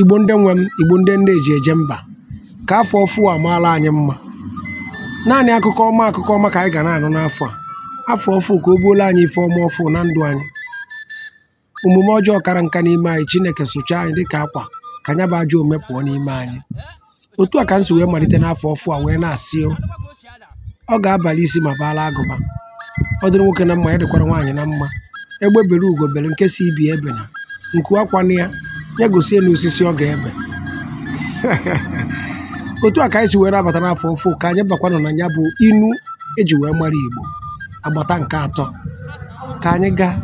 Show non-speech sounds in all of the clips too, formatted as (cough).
Igbo ndị nwe m, Igbo ndị nne eji eje mba, ka afọ ọfụ a maara anyị mma. Naanị akụkọ ọma akụkọ ọma ka anyị ga na-anụ n'afọ a. Afọ ọfụ ka o buola anyị ife ọma ọfụ na ndụ anyị. Omume ọjọọ kara nka n'ime anyị, Chineke sụchaa anyị dịka akwa ka nya bụ ajọ ome pụọ n'ime anyị. Otu a ka m si wee malite n'afọ ọfụ a wee na-asị ọ ga-abalị isi ma baala agụba. Ọ nwoke na mma, ya dịkwara nwaanyị na mma. Egbe bere ugo bere, nke si ebena. Nku akwa ya ya gosie na osisi ọ ga-ebe (laughs) otu a ka anyị si were abata n'afọ ofu ka anyị bakwanụ na ya bụ inu eji wee mara igbo agbata nke atọ ka anyị gaa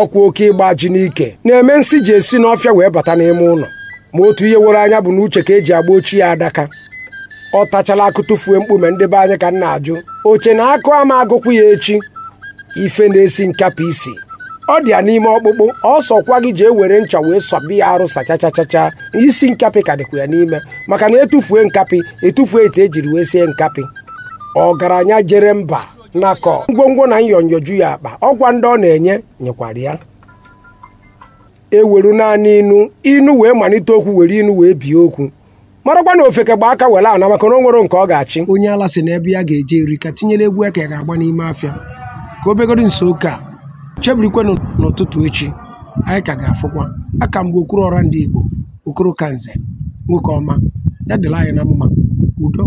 ọkwa oke ịgba ji n'ike na-eme nsị ji esi n'ọfịa wee bata n'ime ụlọ ma otu ihe were anya bụ na uche ka eji agba ochie adaka ọ tachala akụ tụfuo mkpume ndị be anyị ka m na-ajụ oche na akụ ama agụkwụ ya echi ife na-esi nkapụ isi ọ dị ya n'ime ọkpụkpụ ọsọkwa gị jee were ncha wee sọbi ya arụ sachachachacha isi nkapị ka dịkwa ya n'ime maka na etufue nkapị etufue ite ejiri wee sie nkapị ọgaranya jere mba nakọ ngwongwo na nyonyoju ya akpa ọkwa ndị ọ na-enye nyekwara ya eweru naanị inu inu wee malite okwu were inu wee bie okwu marakwa na ofeke gba aka were ana maka na o nwere nke ọ ga-achị onye ala si n'ebe ya ga-eje eri ka tinyere egwu ya ka ya ga-agba n'ime afịa ka o nso oke a chebirikwenụ n'ụtụtụ echi anyị ka ga-afụkwa aka mgbe okoro ọra ndị Igbo okoro kanze nwoke ọma ya dịla anyị na mma udo